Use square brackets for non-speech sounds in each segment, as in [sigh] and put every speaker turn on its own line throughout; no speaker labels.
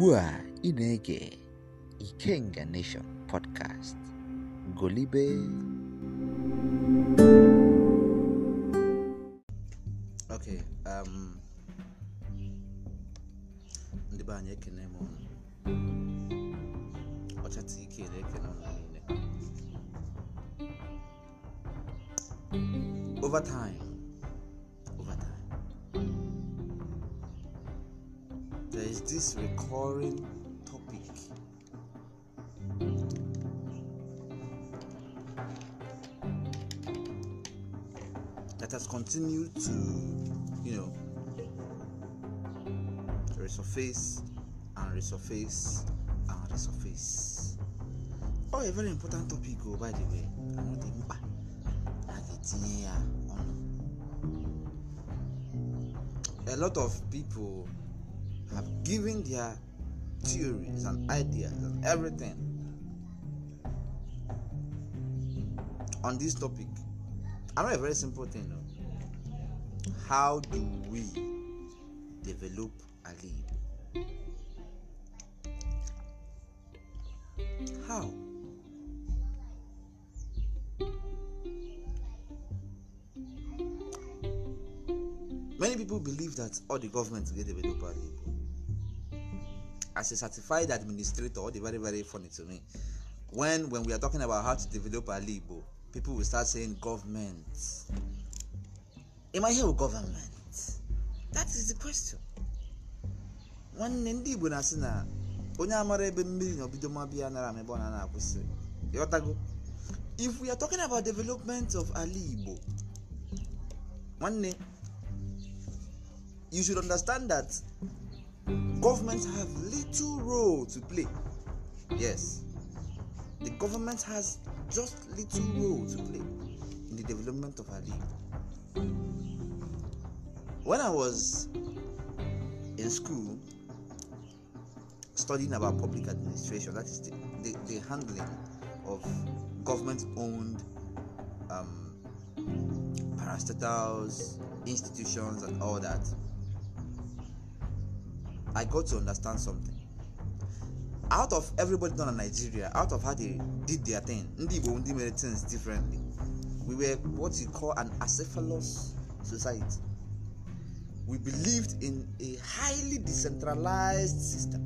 ugbu a ị na-ege Ikenga Nation podcast golibe ok um, ndị be anyị ekene m ọchata ike na-ekene ọnụ niile over this recurring topic. That has continued to, you know, resurface and resurface and resurface. Oh, a very important topic, go oh, by the way.
I'm not even back.
I get A lot of people have given their theories and ideas and everything on this topic. I know a very simple thing. No? How do we develop a lead? How? Many people believe that all the go get a lead. as a certified administrator, they're very, very funny to me. When when we are talking about how to develop Alibo, people will start saying government. Am I here with government?
That is the question. nwanne
ndị Igbo na-asị na onye amara ebe mmiri na obido ma bịa nara m ebe na-akwụsị ịghọtago if we are talking about development of ala Igbo nwanne you should understand that Government have little role to play. Yes, the government has just little role to play in the development of our league. When I was in school studying about public administration, that is the, the, the handling of government owned um, parastatals, institutions, and all that I got to understand something. Out of everybody done in Nigeria, out of how they did their thing, ndị Igbo ndị mere things differently. We were what you call an acephalous society. We believed in a highly decentralized system.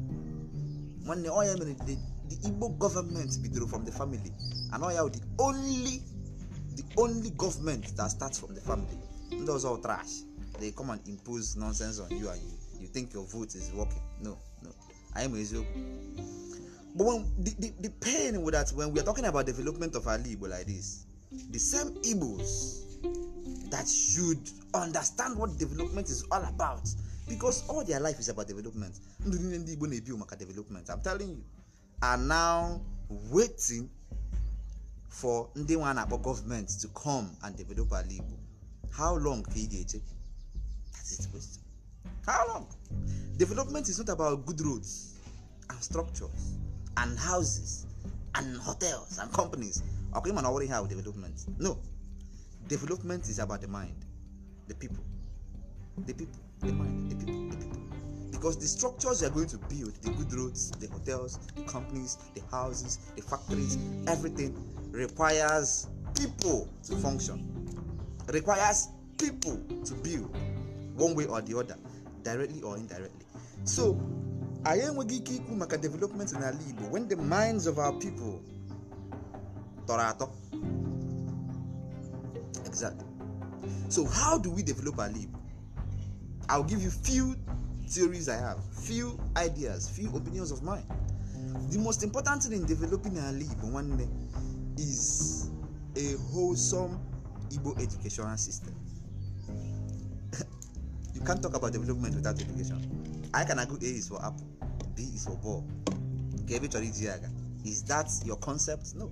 Nwanne ọ ya the the Igbo government bidoro from the family and oya ya the only the only government that starts from the family. Ndị all trash. They come and impose nonsense on you and you you think your vote is working. No, no. I am But when the, the, the pain with that when we are talking about development of Ali Igbo like this, the same Igbos that should understand what development is all about. Because all their life is about development. Ndị Igbo na-ebi development. I'm telling you. Are now waiting for ndị nwa akpọ to come and develop ala Igbo. How long can ị take That is the question. How long? Development is not about good roads and structures and houses and hotels and companies. Okay, man, already have development. No, development is about the mind, the people, the people, the mind, the people, the people. Because the structures you are going to build, the good roads, the hotels, the companies, the houses, the factories, everything requires people to function, requires people to build one way or the other. directly or indirectly so anyị enweghị ike ikwu maka development n'ala Igbo when the minds of our people toro ato. exactly so how do we develop ala Igbo I'll give you few theories I have few ideas few opinions of mine the most important thing in developing ala Igbo nwanne is a wholesome Igbo educational system you can't talk about development without education i can agree a is for apple b is for ball gebe chọrọ iji is that your concept no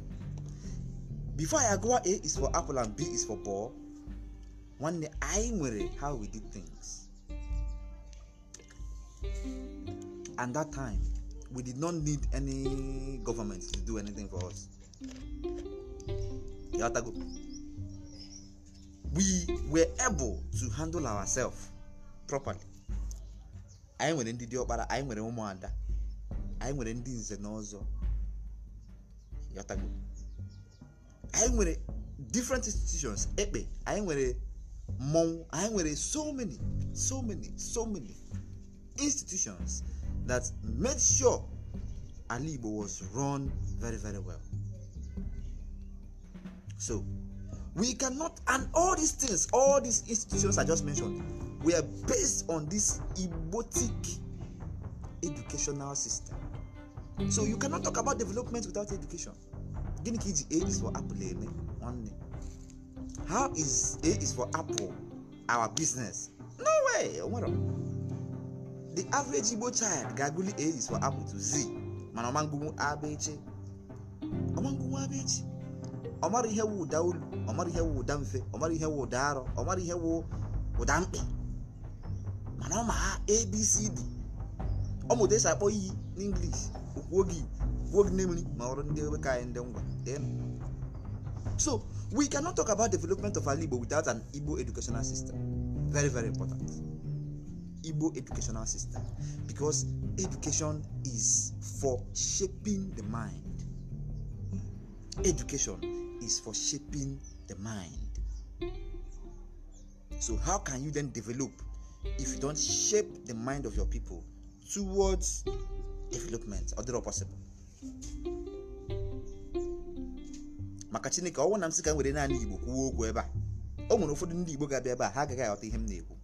before i agree a is for apple and b is for ball day I nwere how we did things and that time we did not need any government to do anything for us we were able to handle ourselves properly anyị nwere ndị diọkpara anyị nwere ụmụada anyị nwere ndị nze n'ọzọ ọzọ yọtago anyị nwere different institutions ekpe anyị nwere mmọnwụ anyị nwere so many so many so many institutions that made sure ala igbo was run very very well so we cannot and all these things all these institutions i just mentioned were based on this emotic educational system. So you cannot talk about development without education. Gini ka A is for apple eme name How is A is for apple our business? No way! Onwere. The average Igbo child ga-agụli A is for apple to Z mana ọ ma ngụnwu abechi. Ọ ma ngụnwu abechi. Ọ mara ihe wụ ụda olu, ọ mara ihe wụ ụda mfe, ọ mara ihe wụ ụda arọ, ọ ihe wụ ụda mkpi. mana ọ ma abcd ọmụta esi akpọ iyi n'inglish gwuo gị kwuo gị n'emiri ma ọrụ ndị ebe ka anyị ndị ngwa so we cannot talk about development of ala igbo without an igbo educational system very very important igbo educational system because education is for shaping the mind education is for shaping the mind so how can you then develop if you don't shape the mind of your people towards development ọ dịrọ possible maka chineke ọnwụ na m sị ka naanị igbo kwuo okwu ebe a o nwere ụfọdụ ndị igbo ga-abịa ebe a ha agaghị aghọta ihe m na-ekwu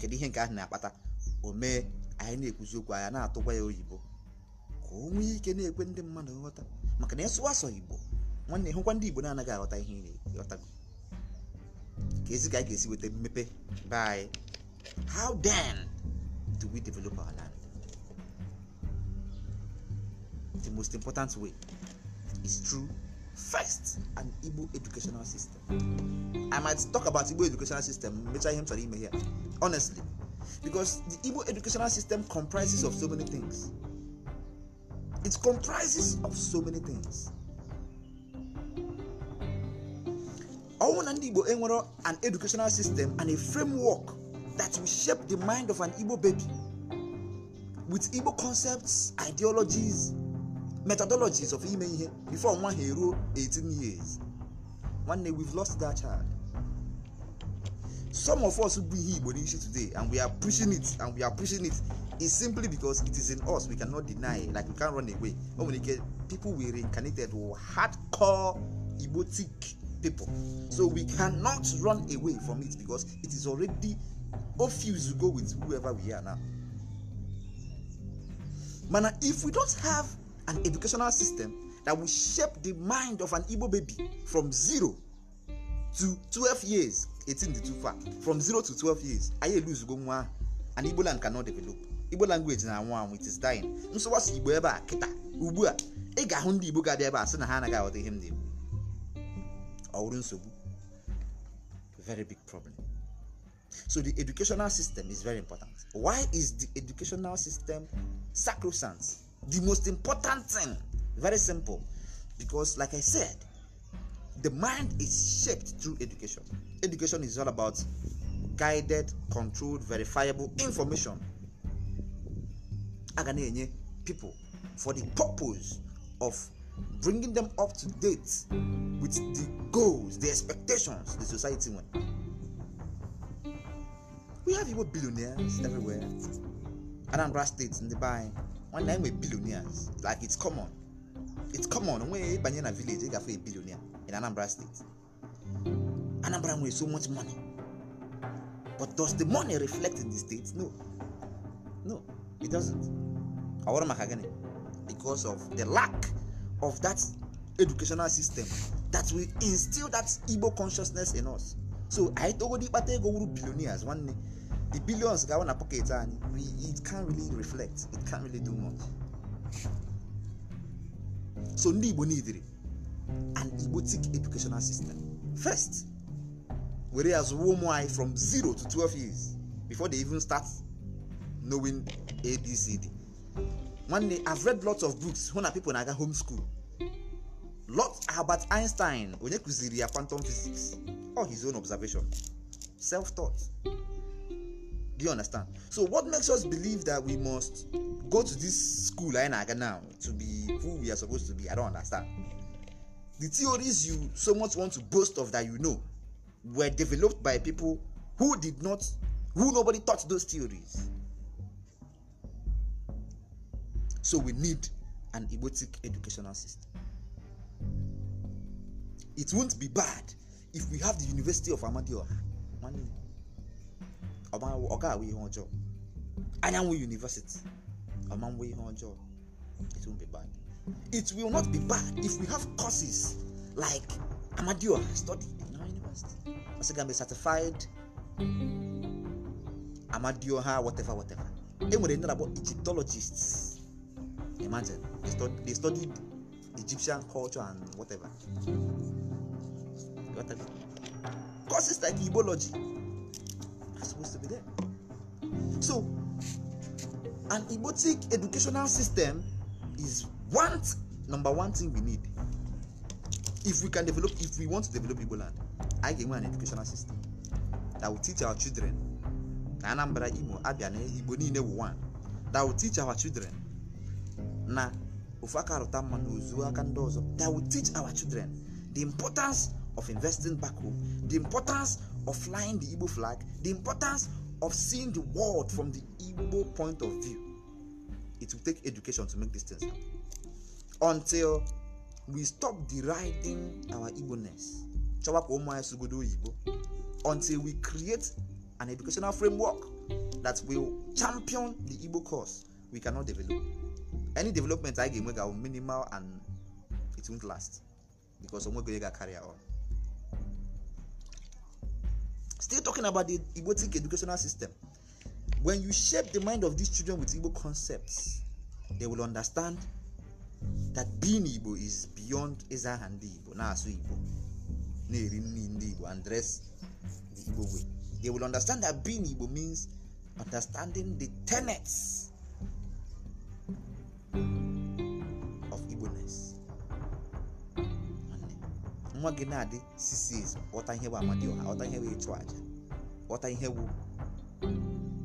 kedu ihe nke ahụ na-akpata o mee anyị na-ekwuzi okwu anya na-atụkwa ya oyibo ka o nwee ike na-ekwe ndị mmadụ nghọta maka na ịsụwa asọ igbo nwanne hụkwa ndị igbo na-anaghị aghọta ihe ị na-aghọtago ka ezi ka anyị ga-esi weta mmepe be anyị How then do we develop our land? The most important way is through first an Igbo educational system. I might talk about Igbo educational system later him ime here. Honestly, because the Igbo educational system comprises of so many things. It comprises of so many things. ọnwụ na ndị igbo enwere an educational system and a framework that will shape the mind of an Igbo baby with Igbo concepts, ideologies, methodologies of ime ihe before nwa ha eruo 18 years. Nwanne, we've lost that child. Some of us be here Igbo nation today and we are pushing it and we are pushing it is simply because it is in us. We cannot deny it. Like we can't run away. But when you get people we reincarnated were hardcore Igbotic people. So we cannot run away from it because it is already Refuse to go with whoever we are now. Mana, if we don't have an educational system that will shape the mind of an Igbo baby from zero to 12 years, 18 to too far, from zero to 12 years, I elu izugbo nwa, and Igbo land cannot develop. Igbo language na nwa it is dying. Nsọwasị Igbo ebe a kịta ugbu a ị ga-ahụ ndị Igbo ga-abịa ebe a sị na ha anaghị aghọta ihe m na-ekwu. Ọ wụrụ nsogbu. Very big problem. So the educational system is very important. Why is the educational system sacrosanct? The most important thing, very simple, because like I said, the mind is shaped through education. Education is all about guided, controlled, verifiable information. Aganenye people for the purpose of bringing them up to date with the goals, the expectations the society wants. we have Igbo billionaires everywhere. Anambra State, Ndibai, one nine with billionaires. Like it's common. It's common. When you in a village, you have a billionaire in Anambra State. Anambra with so much money. But does the money reflect in the state? No. No, it doesn't. Awarama Kagane. Because of the lack of that educational system that will instill that Igbo consciousness in us. So I told you, but they go billionaires one day. the billions ga-awụ na and anyị it can really reflect it can really do much so ndị igbo nidiri an igbotic educational system first were as zụwa from 0 to 12 years before they even start knowing abcd nwanne i've read lots of books hụ na people na-aga home school lot albert einstein onye kụziri ya quantum physics or his own observation self-taught Do you understand? So what makes us believe that we must go to this school I Naga now to be who we are supposed to be? I don't understand. The theories you so much want to boast of that you know were developed by people who did not who nobody taught those theories. So we need an egotic educational system. It won't be bad if we have the University of Amadioha. One ọ ga-awụ ihe ọjọọ anyanwụ university ọ ma ihe ọjọọ it won't be bad it will not be bad if we have courses like Amadioha studied in our university ọsị ga mbe certified Amadioha whatever whatever e nwere ndị na-akpọ Egyptologists imagine they studied, they studied Egyptian culture and whatever courses like ibology are supposed to be there. So, an emotic educational system is one number one thing we need. If we can develop, if we want to develop Igboland, I give an educational system that will teach our children na Anambra, Imo, Abia, na Igbo niile wụ one that will teach our children na ofu aka arụta mma na ozu aka ndị ọzọ that will teach our children the importance of investing back home, the importance of flying the Igbo flag, the importance of seeing the world from the Igbo point of view. It will take education to make these things happen. Until we stop deriding our Igbo-ness. Until we create an educational framework that will champion the Igbo cause, we cannot develop. Any development I give will minimal and it won't last because Omwego Yega carry on. Still talking about the Igbo educational system. When you shape the mind of these children with Igbo concepts, they will understand that being Igbo is beyond eza and Igbo, so Igbo, Neri Igbo, and dress the Igbo way. They will understand that being Igbo means understanding the tenets nwa gị na-adị sisis ghọta ihe bụ amadioha ghọta ihe bụ ịchụ aja ghọta ihe wu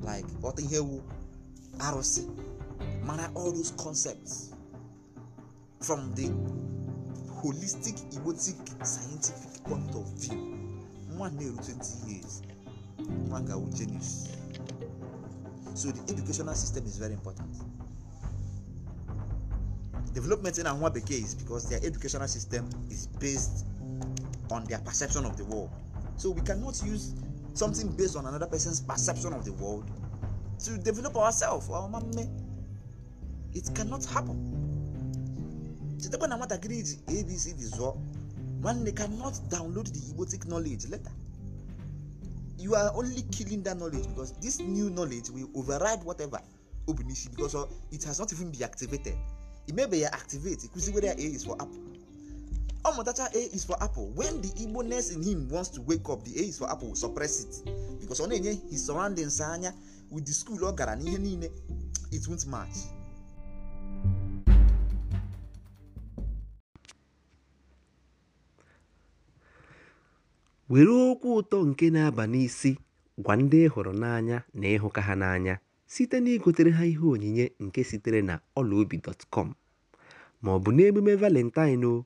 like ghọta ihe wu arụsị mara all those concepts from the holistic egotic scientific point of view nwa na-eru 20 years nwa ga-awụ genius so the educational system is very important development in nwa bekee is because their educational system is based on their perception of the world. So we cannot use something based on another person's perception of the world to develop ourselves. It cannot happen. Chetakwa na nwatakịrị ji abc dị zụọ nwanne cannot download the igbotic knowledge later. You are only killing that knowledge because this new knowledge will override whatever Obinishi because it has not even been activated. It may be activated. because whether A is for apple. ọ mụtacha a is for apple when the igbo nurse in him wants to wake up the a is for apple suppress it because ọ na-enye his surroundings anya with the school ọ gara n'ihe niile it won't match
were okwu ụtọ nke na-aba n'isi gwa ndị hụrụ n'anya na ịhụka ha n'anya site na igotere ha ihe onyinye nke sitere na ọlaobi ma ọ bụ n'emume valentine o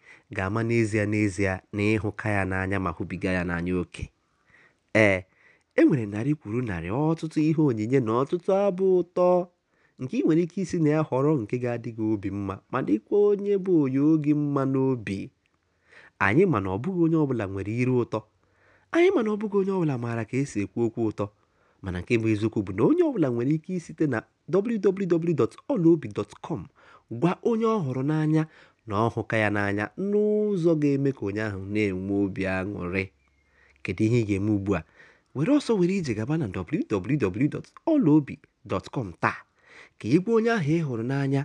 ga-ama n'ezie n'ezie na ịhụka ya n'anya ma hụbiga ya n'anya oke ee e nwere narị kwuru narị ọtụtụ ihe onyinye na ọtụtụ abụ ụtọ nke ị nwere ike isi na ya họrọ nke ga-adị gị obi mma ma dịkwa onye bụ onye oge mma n'obi anyị mana ọbụghị onye ọbụla nwere iru ụtọ anyị mana ọbụghị onye ọbụla maara ka esi ekwu okwu ụtọ mana nke bụ eziokwu bụ na onye ọbụla nwere ike isite na wwwolobicom gwa onye ọ n'anya na ọ hụka ya n'anya n'ụzọ ga-eme ka onye ahụ na-enwe obi aṅụrị kedu ihe ị ga-eme ugbu a were ọsọ were ije gaba na www.ọlaobi.com taa ka ị gwa onye ahụ ị hụrụ n'anya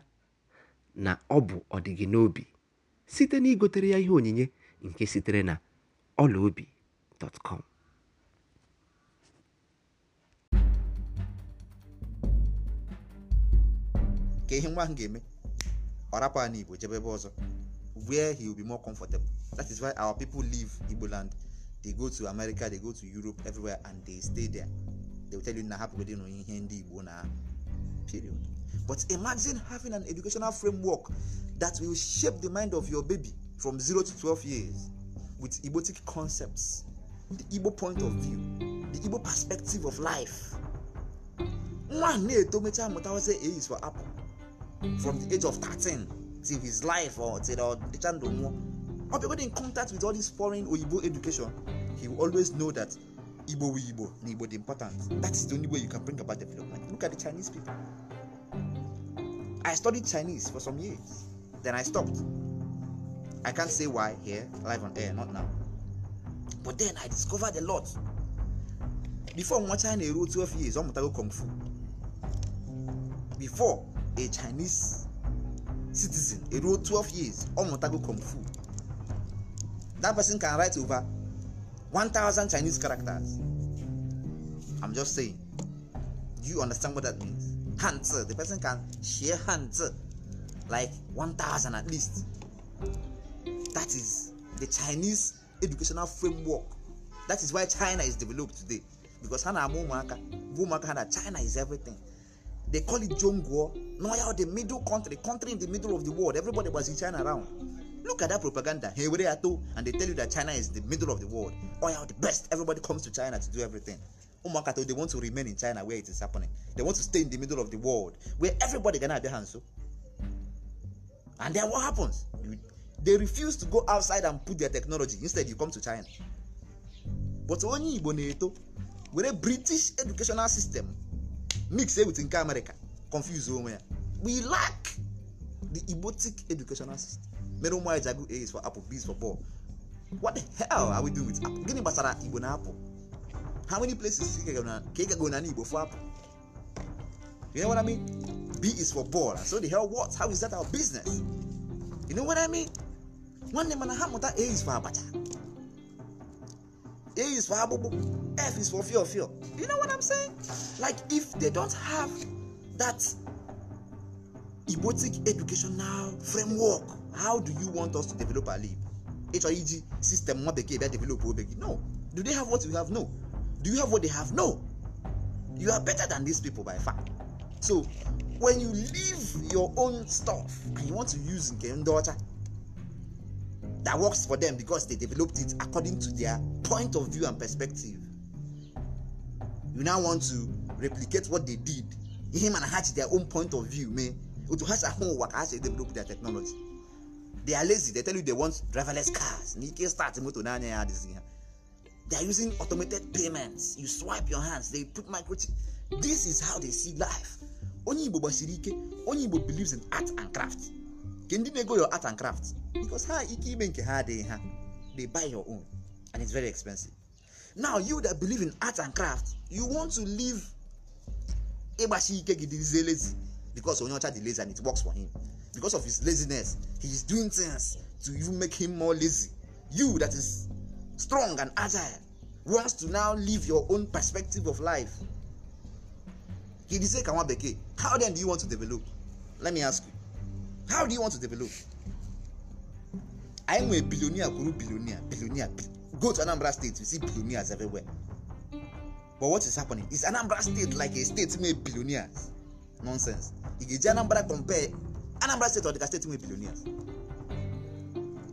na ọ bụ ọdịgị n'obi site na igotere ya ihe onyinye nke sitere na ọlaobi.com
ka ihe nwa ahụ ga-eme Parapa and Igbo jebe ọzọ where he will be more comfortable that is why our people leave Igbo land they go to America they go to Europe everywhere and they stay there they will tell you na hapụgodị na ihe ndị Igbo na period but imagine having an educational framework that will shape the mind of your baby from 0 to 12 years with Igbotic concepts the Igbo point of view the Igbo perspective of life nwa na-eto mechaa mụtawazi A is for apple from the age of 13 till his life or till or chando more or people in contact with all this foreign oyibo education he will always know that igbo we igbo na igbo dey important that is the only way you can bring about development look at the chinese people i studied chinese for some years then i stopped i can't say why here live on air not now but then i discovered a lot before nwa china eruo 12 years ọ mụtago kung fu before a chinese citizen a eruo 12 years ọ mụtago kung fu that person can write over 1000 chinese characters i'm just saying do you understand what that means hands the person can share hands like 1000 at least that is the chinese educational framework that is why china is developed today because ha na-ama ụmụaka bụ ụmụaka ha na china is everything They call it Jongo, Noya, the middle country, country in the middle of the world. Everybody was in China around. Look at that propaganda. Hey, where are and they tell you that China is the middle of the world. Oh, yeah, the best. Everybody comes to China to do everything. Umakato, they want to remain in China where it is happening. They want to stay in the middle of the world where everybody gana have their hands. So. And then what happens? They refuse to go outside and put their technology. Instead, you come to China. But only Igbo na with a British educational system, mix with nke america confuse onwe ya we lack the igbotic educational system mere ụmụ anyị ji agụ a's for apple b's for ball what the hell are we doing with apple gịnị gbasara igbo na apple how many places ka ị gago na igbo for apple you know what i mean b is for ball so the hell what how is that our business you know what i mean nwanne mana ha mụta a is for abacha A is for Abubu, F is for fear, of fear. You know what I'm saying? Like, if they don't have that emotic educational framework, how do you want us to develop our life? HIEG system, what they develop, no. Do they have what we have? No. Do you have what they have? No. You are better than these people by far. So, when you leave your own stuff and you want to use Game Daughter, that works for them because they developed it according to their point of view and perspective. You now want to replicate what they did, him and hatch their own point of view, man. To hatch a home work, as they develop their technology. They are lazy. They tell you they want driverless cars. Nike start motor They are using automated payments. You swipe your hands. They put microchip. This is how they see life. Onye Igbo gbasiri ike. Onye Igbo believes in art and craft. Can you go your art and craft? because ha ike ime nke ha adịghị ha they buy your own and it's very expensive now you that believe in art and craft you want to live ịgbashi ike gị dịzie lazy because onye ọcha dị lazy and it works for him because of his laziness he is doing things to even make him more lazy you that is strong and agile wants to now live your own perspective of life gị dịzie ka bekee how then do you want to develop let me ask you how do you want to develop anyị nwere bilionia kwuru billionaire go to anambra state you see billionaires everywhere but what is happening is anambra state like a state made billionaires nonsense ị ga-eji anambra compare anambra state ọdịka state made billionaires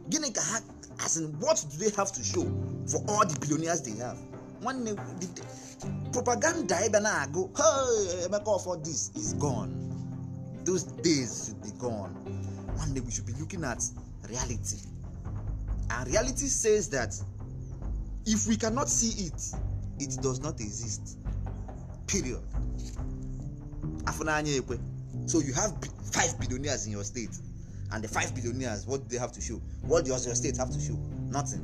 gịnị ka ha as in what do they have to show for all the billionaires they have nwanne propaganda ebe na-agụ emeka ọfọ this is gone those days should be gone One day we should be looking at reality And reality says that if we cannot see it, it does not exist. Period. So you have five billionaires in your state, and the five billionaires, what do they have to show? What does your state have to show? Nothing.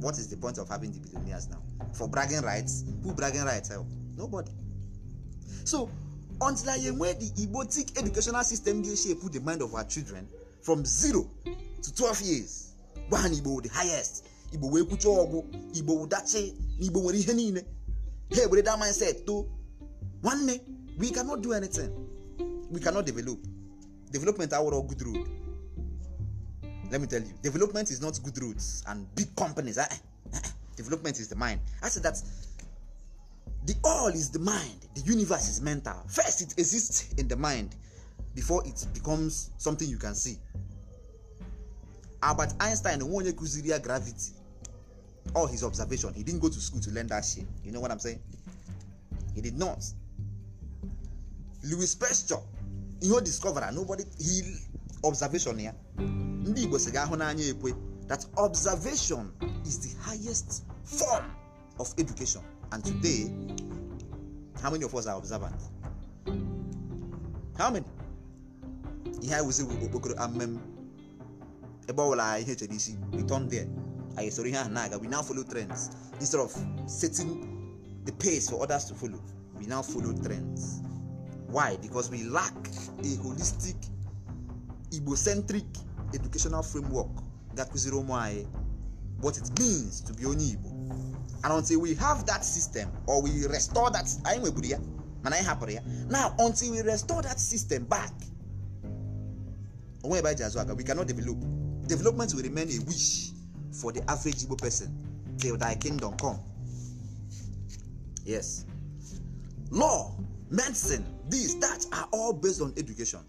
What is the point of having the billionaires now? For bragging rights, who bragging rights? Help? Eh? Nobody. So until I am where the tic educational system dey shape the mind of our children from zero to 12 years, gwa ha na igbo the highest igbo wee kwucha ọgwụ igbo ụdachi na igbo nwere ihe niile ha ewere that mindset too nwanne we cannot do anything we cannot develop development awụrụ good road let me tell you development is not good roads and big companies eh, eh, eh, eh? development is the mind i said that the all is the mind the universe is mental first it exists in the mind before it becomes something you can see albert einstein nwe onye kụziri ya gravity all his observation he didn't go to school to learn that shit you know what i'm saying he did not louis pasteur ihe o discovera nobody he observation ya ndị igbo si ga-ahụ n'anya ekwe that observation is the highest form of education and today how many of us are observant how many ihe anyị wụzi okpokoro amem ebe ọ bụla ihe chere isi return there anyị soro ihe ahụ na-aga we now follow trends instead of setting the pace for others to follow we now follow trends why because we lack a holistic igbo-centric educational framework ga-akụziri ụmụ anyị what it means to be onye igbo and until we have that system or we restore that anyị nweburu ya mana anyị hapụrụ ya now until we restore that system back onwe ebe anyị ji azụ aka we cannot develop Development will remain a wish for the average Igbo person till thy kingdom come. Yes. Law, medicine, these, that are all based on education.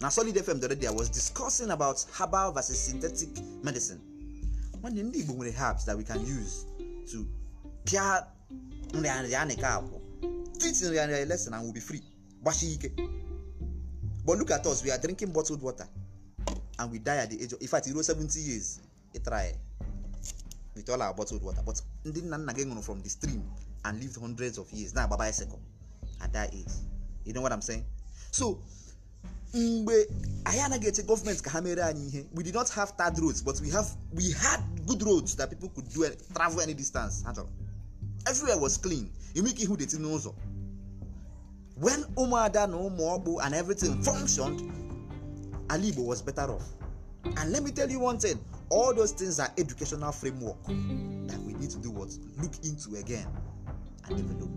Now, Solid FM the other day, I was discussing about herbal versus synthetic medicine. One in the Igbo herbs that we can use to care teach in lesson and we'll be free. But look at us, we are drinking bottled water. and we die at the age of in fact ruo 70 years try. with all our bottled water but ndị nna nna gị ṅụrụ from the stream and lived hundreds of years na-agba bicycle at that age you know what I'm saying so mgbe anyị anaghị eche gọọmenti ka ha mere anyị ihe we did not have third roads but we have we had good roads that people could do travel any distance ha chọrọ everywhere was clean enwe ihu dey deti n'ụzọ when ụmụada na ụmụ ọkpụ and everything functioned Alibo was better off. And let me tell you one thing all those things are educational framework that we need to do what? Look into again and develop.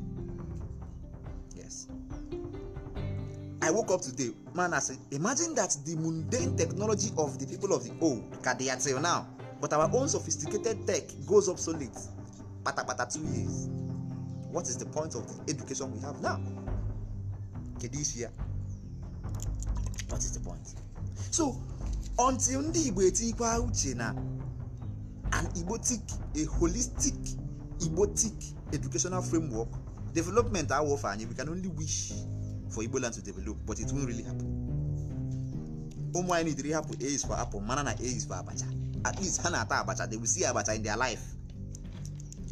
Yes. I woke up today, man. I said, imagine that the mundane technology of the people of the old, they are now, but our own sophisticated tech goes obsolete. Pata pata two years. What is the point of the education we have now? Kedishia. What is the point? so until ndị igbo etikwa uche na an igbotic a holistic igbotic educational framework development awụ anyi anyị we can only wish for igbo land to develop but it won't really happen ụmụ anyị dịrị hapụ a is for apple mana na a is for abacha at least ha na-ata abacha they will see abacha in their life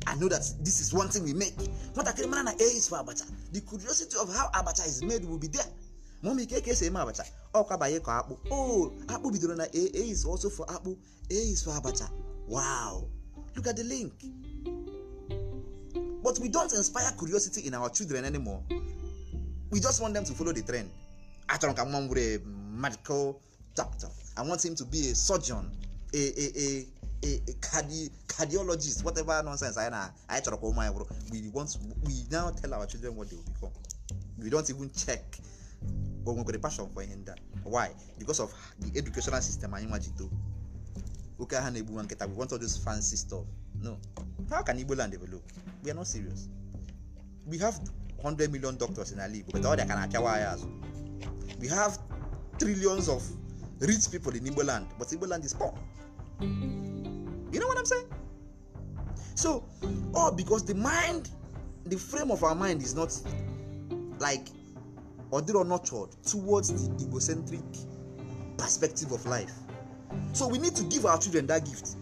I know that this is one thing we make. Nwatakịrị mana na A is for abacha. The curiosity of how abacha is made will be there. Ma ọ ma ike ka esi eme abacha ọkwa banye ka akpụ o oh, akpụ bidoro na a a is also for akpụ a is for abacha wow look at the link but we don't inspire curiosity in our children anymore we just want them to follow the trend achọrọ ka nwa m medical doctor i want him to be a surgeon a a a a, cardi cardiologist whatever nonsense anyị na anyị chọrọ ka ụmụ anyị bụrụ we want we now tell our children what they will become we don't even check but we a passion for ihe ndị why because of the educational system anyị nwa ji too oke aha na-egbu nwa nkịta we want all those fancy stuff no how can Igbo land develop we are not serious we have 100 million doctors in ala Igbo but ọrịa ka na-apịawa anyị azụ we have trillions of rich people in Igbo land but Igbo land is poor you know what I'm saying so all because the mind the frame of our mind is not like or they are nurtured towards the egocentric perspective of life. So we need to give our children that gift.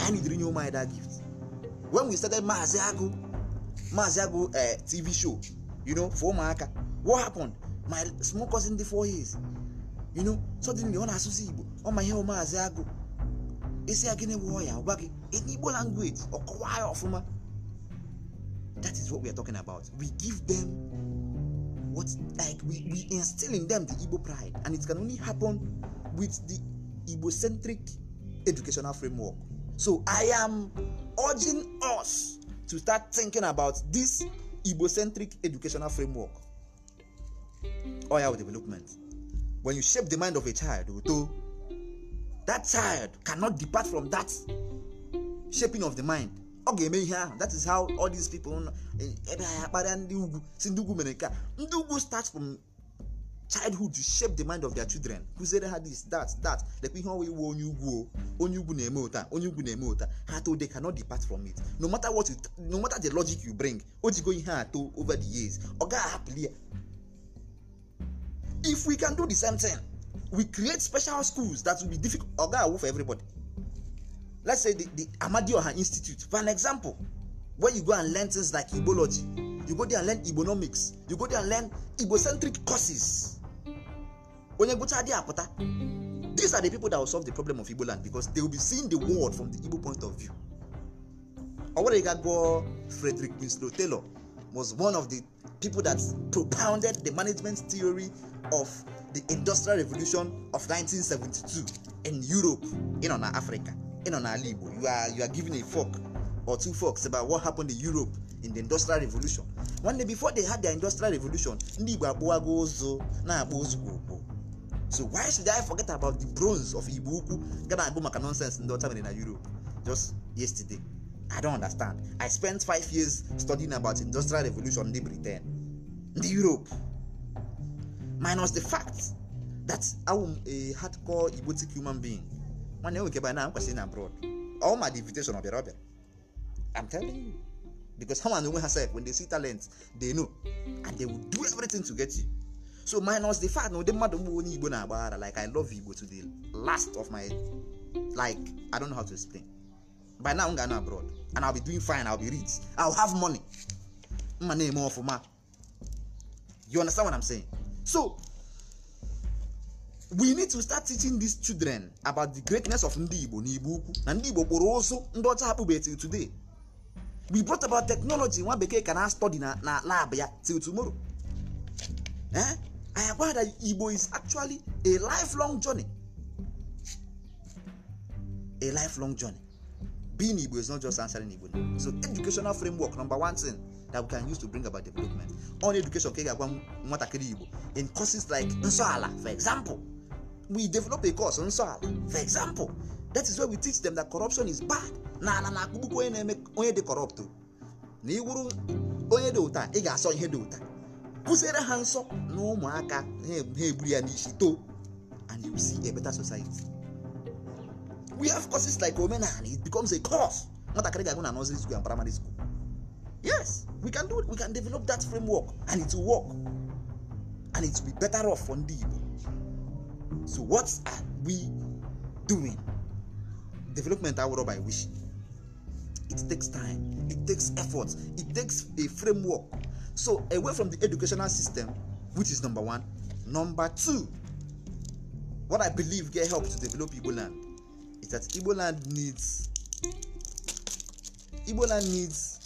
I need renew my that gift. When we started Maziago, Maziago uh, eh, TV show, you know, for Maaka, what happened? My small cousin the four years, you know, suddenly on Asusibo, on my hair Maziago. Isi agene warrior, wagi, in Igbo language, or Kawai of That is what we are talking about. We give them what like we, we instill in them the Igbo pride, and it can only happen with the Igbo centric educational framework. So I am urging us to start thinking about this Igbo centric educational framework. Oil oh, development. When you shape the mind of a child, that child cannot depart from that shaping of the mind ọ ga-eme ihe ahụ that is how all these people e, ebe anyị akparịa ndị ugwu si ndị ugwu mere nke a ndị ugwu start from childhood to shape the mind of their children kụziere ha this that that lekwa ihe ọwa iwu onye ugwu onye ugwu na-eme ụta onye ugwu na-eme ụta ha too they cannot depart from it no matter what you, no matter the logic you bring o jigo ihe a too over the years ọ gaghị ahapụli ya if we can do the same thing we create special schools that will be difficult ọ gaghị awụ for everybody let's say the, the Amadioha Institute, for an example, where you go and learn things like Igbology you go there and learn Igbonomics you go there and learn Ibocentric courses. These are the people that will solve the problem of Igboland because they will be seeing the world from the Igbo point of view. Owaregagbo Frederick Winslow Taylor was one of the people that propounded the management theory of the Industrial Revolution of 1972 in Europe, in on Africa. ị nọ n'ala Igbo you are you are giving a fork or two forks about what happened in Europe in the industrial revolution nwanne before they had their industrial revolution ndị Igbo akpụwago ụzụ na-akpụ ozugbo ugbo so why should I forget about the bronze of Igbo ukwu ga na-agụ maka nonsense ndị ọcha mere na Europe just yesterday I don't understand I spent five years studying about industrial revolution ndị Britain ndị Europe minus the fact that I am a hardcore Igbotic human being nwanne nwoke ebe na kwesịrị na abroad all my invitation ọbịara ọbịara i'm telling you because ha na onwe ha sef when they see talent they know and they will do everything to get you so minus the fact na ụdị mmadụ mgbe onye igbo na-agbaghara like i love igbo to the last of my like i don't know how to explain by now m ga-anọ abroad and i'll be doing fine i'll be rich i'll have money mma na-eme ọfụma you understand what i'm saying so we need to start teaching these children about the greatness of ndị igbo na igbo ukwu na ndị igbo kpụrụ ụzụ ndị ọcha akpụbe til today we brought about technology nwa bekee ka na study na na lab ya till tomorrow eh i agwa that igbo is actually a lifelong journey a lifelong journey being igbo is not just answering igbo so educational framework number one thing that we can use to bring about development on education ka ị ga-agwa nwatakịrị igbo in courses like nsọala for example we develop a course on soil for example that is where we teach them that corruption is bad na ala na akpụkpụkpụ onye na-eme onye dị corrupt na iwuru onye dị ụta ị ga-asọ ihe dị ụta kụziere ha nsọ na ụmụaka e, ha egburu ya n'isi too and you see a better society we have courses like omenala it becomes a course nwatakịrị ga-agụ na nursery school and primary school yes we can do it. we can develop that framework and it will work and it will be better off for ndị Igbo So what are we doing? Development award by wish. It takes time, it takes effort, it takes a framework. So away from the educational system, which is number one. Number two, what I believe get help to develop Igbo land is that Igbo land needs Igbo land needs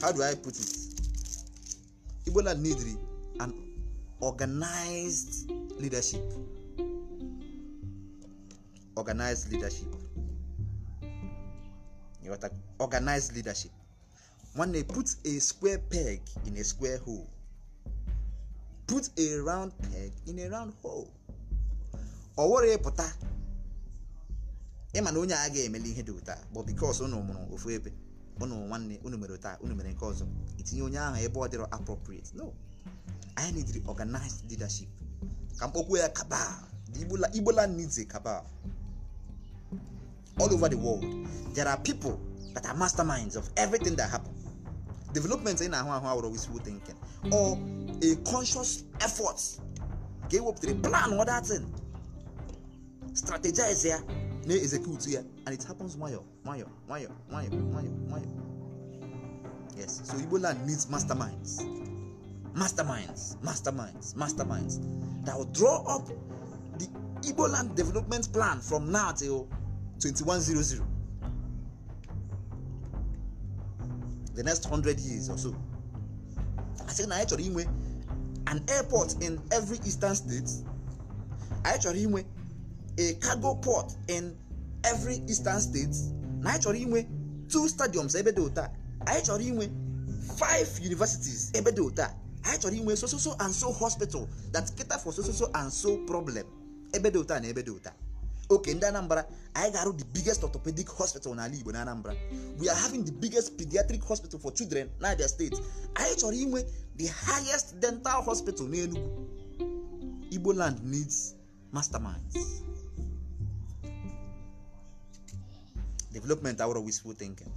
how do I put it? Igbo land needs an organized leadership, organized leadership. Ịghọta organized leadership. Nwanne put a square peg in a square hole. Put a round peg in a round hole. Ọ wụrụ ịpụta ịma na onye a ga-emeli ihe dị ụta bụ bikos unu mụrụ ofu ebe unu nwanne unu mere ụta unu mere nke ọzọ itinye onye ahụ ebe ọ dịrọ appropriate no anyị need organized leadership ka mkpokwu ya cabal the igbola igbola needs a cabal all over the world there are people that are masterminds of everything that happen development ị na-ahụ ahụ awụrụ wisiwu thinking or a conscious effort ka ewepụtara plan or thing strategize ya na execute ya and it happens nwayọ nwayọ nwayọ nwayọ nwayọ nwayọ yes so igbo land needs masterminds masterminds masterminds masterminds that will draw up the Igbo land development plan from now till 2100. The next 100 years or so. I said, na chọrọ inwe an airport in every eastern state. I chọrọ inwe a cargo port in every eastern state. Na anyị inwe two stadiums ebe dị ụta. Anyị inwe five universities ebe dị anyị chọrọ inwe so and so hospital that cater for so and so problem ebe dị na ebe dị oke ndị anambra anyị ga-arụ the biggest orthopedic hospital n'ala igbo na anambra we are having the biggest pediatric hospital for children na abia steeti anyị chọrọ inwe the highest dental hospital n'enugu igbo land needs masterminds development out of wishful thinking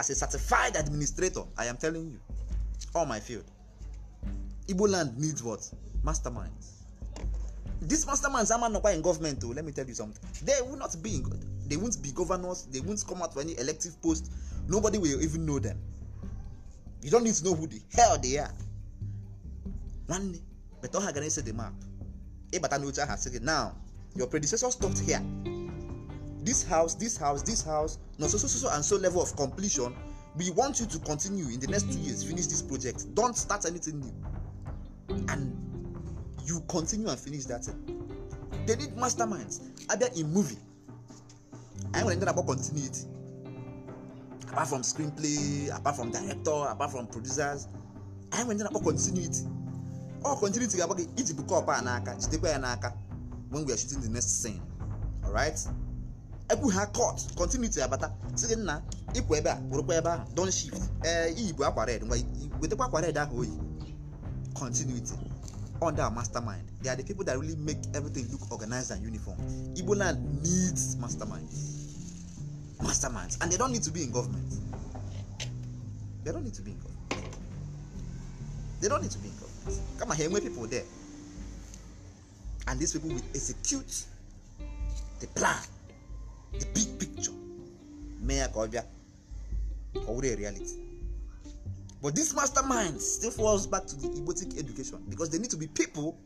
as a certified administrator i am telling you all my field Igbo land needs what? Masterminds. These masterminds are not in government, o, Let me tell you something. They will not be in, they won't be governors, they won't come out for any elective post. Nobody will even know them. You don't need to know who the hell they are. Nwanne, but all Hagane said the map. Ebata Nucha has said now. Your predecessor stopped here. This house, this house, this house, no so so so and so level of completion. We want you to continue in the next two years, finish this project. Don't start anything new. and you continue and finish that thing. They need masterminds. Either in movie, I will ended continue it Apart from screenplay, apart from director, apart from producers, I will ended about continuity. Or continuity about iji bukọ ọpa a n'aka jidekwa ya n'aka when we are shooting the next scene. Alright? ebu ha cut continuity abata si nna ịpụ ebe a kwụrụkwa ebe ahụ don shift ee eh, iyi bụ akwa red ngwa wetakwa akwa red ahụ oyi oh, continuity under our mastermind they are the people that really make everything look organized and uniform Igbo land needs masterminds masterminds and they don't need to be in government they don't need to be in government they don't need to be in government come on here many people there and these people will execute the plan the big picture mee ya ka ọ bịa reality But this mastermind still falls back to the Igbotic education because they need to be people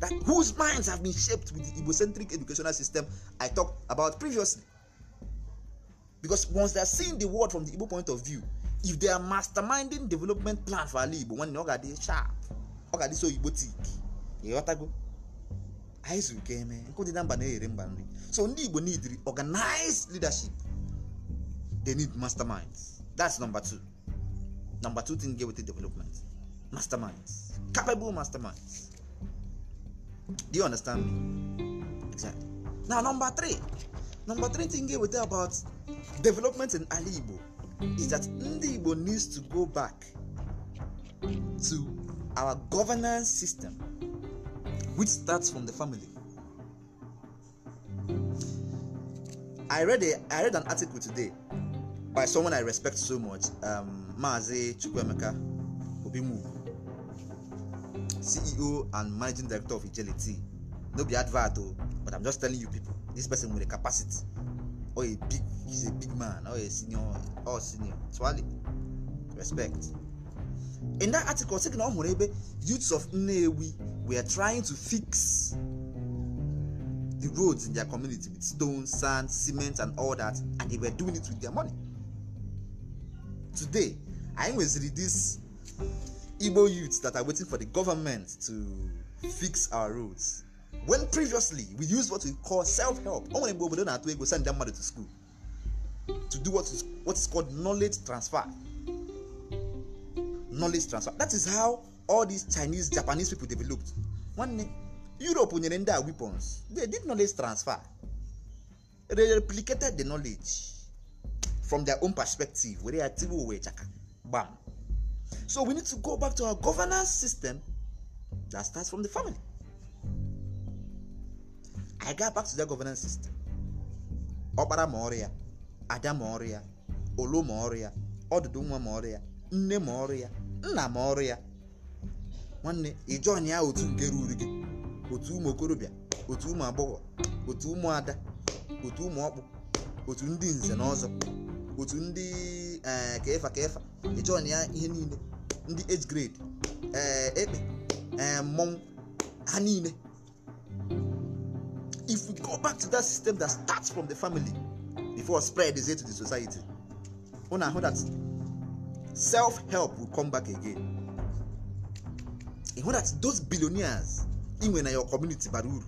that whose minds have been shaped with the Igbocentric educational system I talked about previously. Because once they're seeing the world from the Igbo point of view, if they are masterminding development plan for Ali Igbo when ọ ga sharp ọ ga so Igbotic ịghọtago anyị zuru ka eme nkụ dị na mba so ndị Igbo need organized leadership they need masterminds that's number two. Number two thing, get with the development. Masterminds. Capable masterminds. Do you understand me? Exactly. Now, number three. Number three thing here with about development in Ali Igbo is that Ndi Igbo needs to go back to our governance system, which starts from the family. I read a, I read an article today by someone I respect so much, um, maazị chukwuemeka obimugwu ceo and managing director of ijelity no be advert o but i'm just telling you people this person nwere capacity or a big he's a big man or a senior or senior twali respect in that article sị na ọ hụrụ ebe youths of nnewi were trying to fix the roads in their community with stone sand cement and all that and they were doing it with their money today anyị nweziri this igbo youths that are waiting for the government to fix our roads when previously we used what we call self-help o nwere mgbe obodo na-atụ ego send mmadụ to school to do what is, what is called knowledge transfer knowledge transfer that is how all these chinese japanese people developed nwanne europe nyere ndị a weapons they did knowledge transfer they replicated the knowledge from their own perspective were ya tiwe owe chaka Bam. So we need to go back to our governance system that starts from the family. I got back to that governance system. Ọkpara ma ọrụ ya, ada ma ọrụ ya, olu ma ọrụ ya, ọdụdụ nwa ma ọrụ ya, nne ma ọrụ ya, nna ma ọrụ ya. Nwanne ịjọn ya otu nke ruru gị, otu ụmụ okorobịa, otu ụmụ agbọghọ, otu ụmụ ada, otu ụmụ ọkpụ, otu ndị nze na ọzọ, otu ndị ka ịfa ka ya ihe niile ndị age grade eh, ekpe eh, mmọnwụ ha niile if we go back to that system that starts from the family before spread is to the society una ahụ that self-help will come back again ịhụ that those billionaires inwe na your community bara uru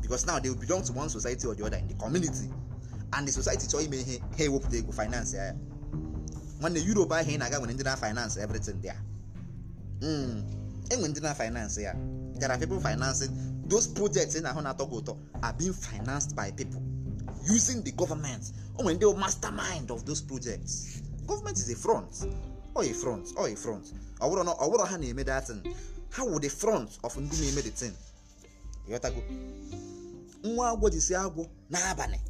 because now they belong to one society or the other in the community and the society chọọ ime ihe ha ewepụta ego finance ya nwanne Europe ahụ ị na-aga nwere ndị na finance everything a. enwere ndị na finance ya gara pipo people financing those projects ị na-ahụ na-atọ gị ụtọ are being financed by people using the government o oh, nwere ndị mastermind of those projects government is a front o oh, a front o oh, a front ọ bụrụ na ọ bụrụ ha na-eme datin ha wụ the front of ndị na-eme the thing ịghọtago nwa agwọ jisi agwọ n'abalị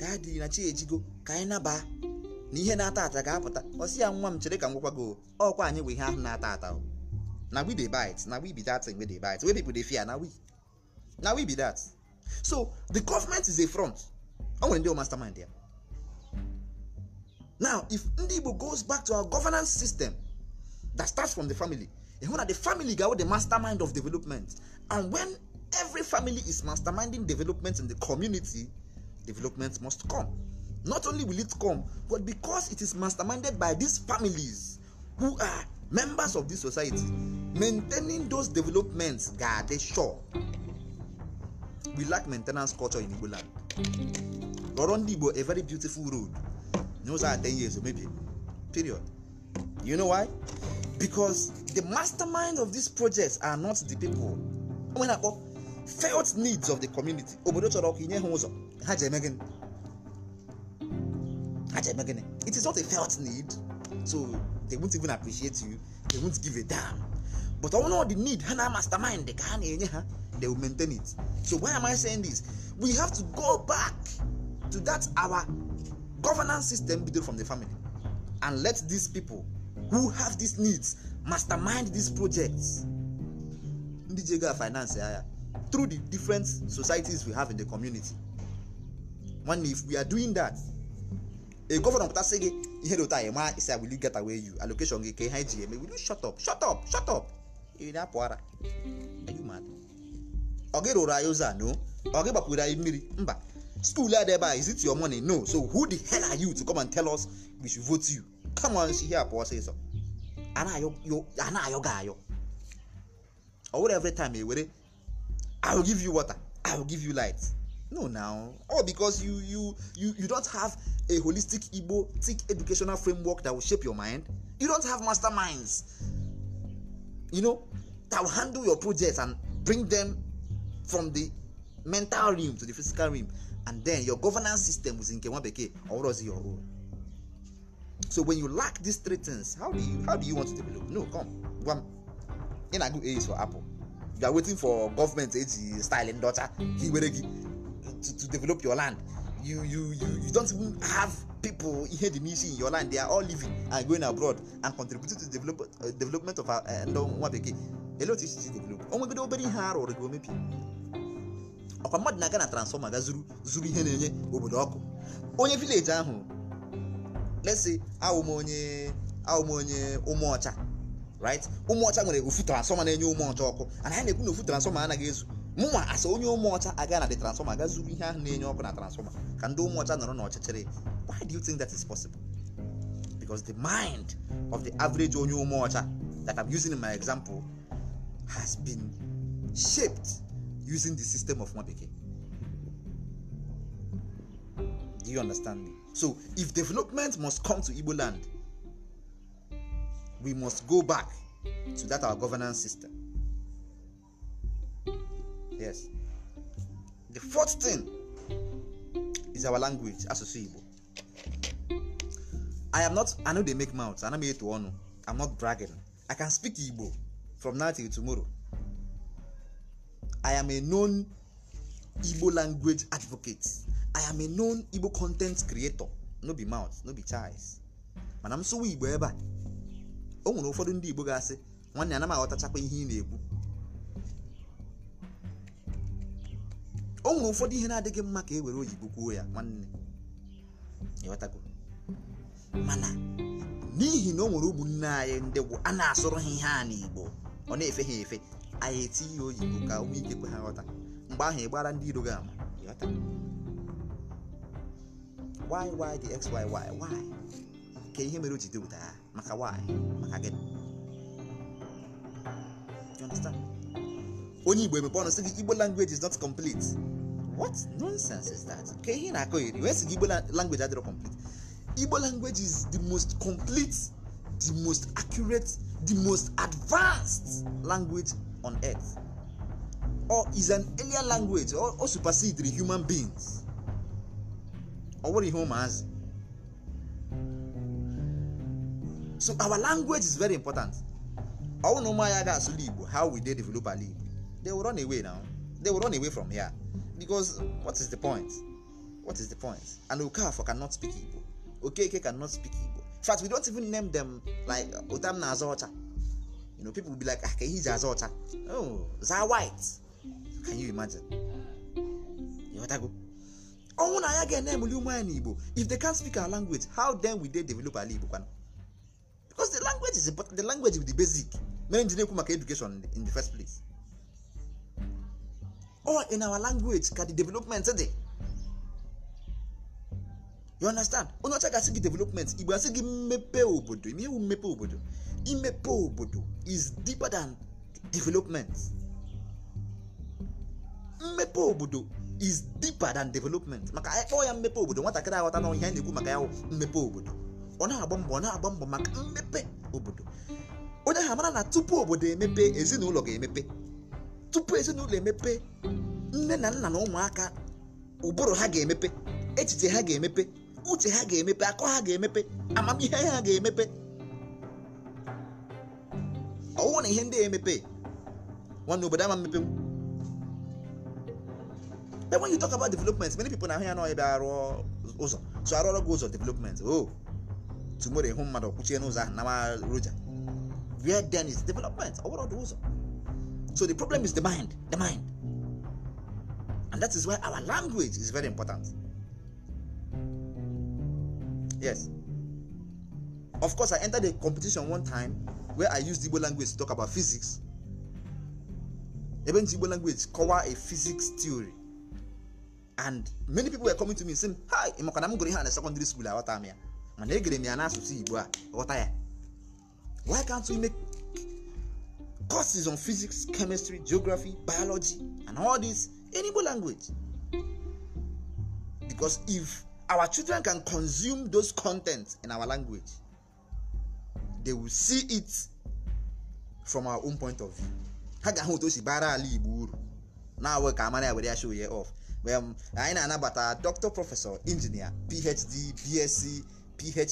ka adịghị na chi ejigo ka anyị nabaa na ihe na-ata ata ga-apụta ọsị ya nwa m chere ka m gwakwa gị ọkwa anyị bụ ihe ahụ na-ata ata na we dey bite na we be that thing we dey bite wey people dey fear na we na we be that so the government is a front o nwere ndị mastermind ya now if ndị Igbo goes back to our governance system that starts from the family ịhụ na the family ga-awụ the mastermind of development and when every family is masterminding development in the community development must come Not only will it come, but because it is masterminded by these families who are members of this society, maintaining those developments, God, sure. We lack maintenance culture in Igbo land. a very beautiful road. Those are 10 years, maybe. Period. You know why? Because the mastermind of these projects are not the people. wey na call felt needs of the community, obodo chọrọ ka inye ha ụzọ, ha ji eme gịnị? It is not a felt need, so they won't even appreciate you, they won't give a damn. But all know the need, Hana mastermind, they can they will maintain it. So why am I saying this? We have to go back to that our governance system built from the family and let these people who have these needs mastermind these projects. Ndijiga finance through the different societies we have in the community. One, if we are doing that, a gọvanọ pụtasị gị ihe dị ụta anyị maa isi will you get away you allocation gị ka ha ji eme will you shut up shut up shut up ị na-apụ ara ọ gị rụrụ anyị ụzọ a no ọ gị gbapụrụ anyị mmiri mba skuul a dị ebe a is it your money no so who the hell are you to come and tell us we should vote you come on si ihe a pụọ ọsịsọ a na-ayọ gị ayọ ọ were every time e were, i will give you water i will give you light no now all because you you you you don't have a holistic igbo thick educational framework that will shape your mind you don't have masterminds you know that will handle your projects and bring them from the mental realm to the physical realm and then your governance system is in Kewabeke or was your own so when you lack these three things how do you how do you want to develop no come one in a good age for apple you are waiting for government age style in daughter he to, to develop your land you you you you don't even have people here the n'isi in your land they are all living and going abroad and contributing to develop uh, development of uh, uh, ndị nwa bekee ele otu isi develop onwegodo obere ihe arụ ọrụ gị omepi ọkwa mmadụ na-aga na transformer ga zuru zuru ihe na-enye obodo ọkụ onye vileji ahụ lesi awụm onye awụm onye ụmụọcha right ụmụọcha nwere ofu transformer na-enye ụmụọcha ọkụ and anyị na-ekwu na ofu transformer anaghị ezu mụnwa asa onye ụmụ ọcha aga na the transformer aga ihe ahụ na-enye ọkụ na transformer ka ndị ụmụ ọcha nọrọ n'ọchịchịrị why do you think that is possible because the mind of the average onye ụmụ ọcha that i'm using in my example has been shaped using the system of nwa bekee do you understand me so if development must come to igbo land we must go back to that our governance system yes the fourth thing is our language asụsụ igbo i am not i no dey make mouth i ana m eto i am not bragging i can speak igbo from now till tomorrow i am a known igbo language advocate i am a known igbo content creator no be mouth no be choice mana m sụwa igbo ebe a o nwere ụfọdụ ndị igbo ga-asị nwanne anaghị aghọtachakwa ihe ị na-ekwu o nwere ụfọdụ ihe na-adịghị mma ka e were oyibo kwuo ya nwanne ịghọtago mana n'ihi na o nwere ụmụnne anyị ndị bụ a na-asụrụ ha ihe a n'igbo ọ na-efe ha efe anyị etinye oyibo ka ụmụ ike kwe ha ghọta mgbe ahụ ị ndị iro gị ama ịghọta why why the x ka ihe mere o ji depụta ya maka why maka gịnị onye igbo emepe ọnụ sị gị igbo language is not complete what nonsense is that ka
ihe na-akọ iri wee sị igbo
language adịrọ complete igbo language is the most complete the most accurate the most advanced language on earth or is an earlier language or, or supersede the human beings ọ wụrụ ihe ụmụazị so our language is very important ọ wụ na ụmụ igbo how we dey develop ala igbo they will run away now they will run away from here because what is the point what is the point and okafor cannot speak igbo okeke cannot speak igbo in fact we don't even name them like otam na azaocha you know people will be like ah kehiji azaocha oh za white can you imagine You ịghọtago ọnwụ na ya ga-enemeli ụmụ anyị Igbo, if they can't speak our language how then will they develop ala igbo kwana because the language is important. the language is the basic mere nji na-ekwu maka education in the first place all in our language ka the development dị you understand onye ọcha gasị gị development igbo asị gị mmepe obodo ime ewu mmepe obodo imepe obodo is deeper than development mmepe obodo is deeper than development maka anyị e, ya mmepe obodo nwatakịrị aghọta na ihe a na-ekwu maka ya mmepe obodo ọ na-agba mbọ ọ na-agba mbọ maka mmepe obodo onye ha mara na tupu obodo emepe ezinụlọ ga-emepe tupu ezinụlọ emepe nne na nna na ụmụaka ụbụrụ ha ga-emepe echiche ha ga-emepe uche ha ga-emepe akọ ha ga-emepe amamihe ha ga-emepe ọwụ na ihe ndị emepe nwanne obodo ama mmepe then when you talk about development many people na ahụ ya n'ọhịa bịa arụ ụzọ so arụọrọ gị ụzọ development o oh, tumoro ịhụ mmadụ kwuchie n'ụzọ ahụ nama roja where then is development ọ ọdụ ụzọ So the problem is the mind, the mind. And that is why our language is very important. Yes. Of course, I entered a competition one time where I used Igbo language to talk about physics. Even Igbo language cover a physics theory. And many people were coming to me saying, Hi, I'm going to secondary school. Why can't we make courses on physics, chemistry, geography, biology, and all this in language. Because if our children can consume those contents in our language, they will see it from our own point of view. ha ga-ahụ otu o si bara ala Igbo uru na-awụ ka amara ya were show ya off anyị na-anabata dr prọfesọ injinia phd bsc phe